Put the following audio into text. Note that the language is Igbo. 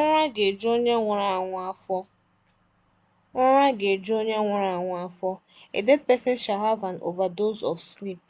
Ụra ga-eju onye nwụrụ anwụ afọ. Ụra ga A dead person shall have an overdose of sleep.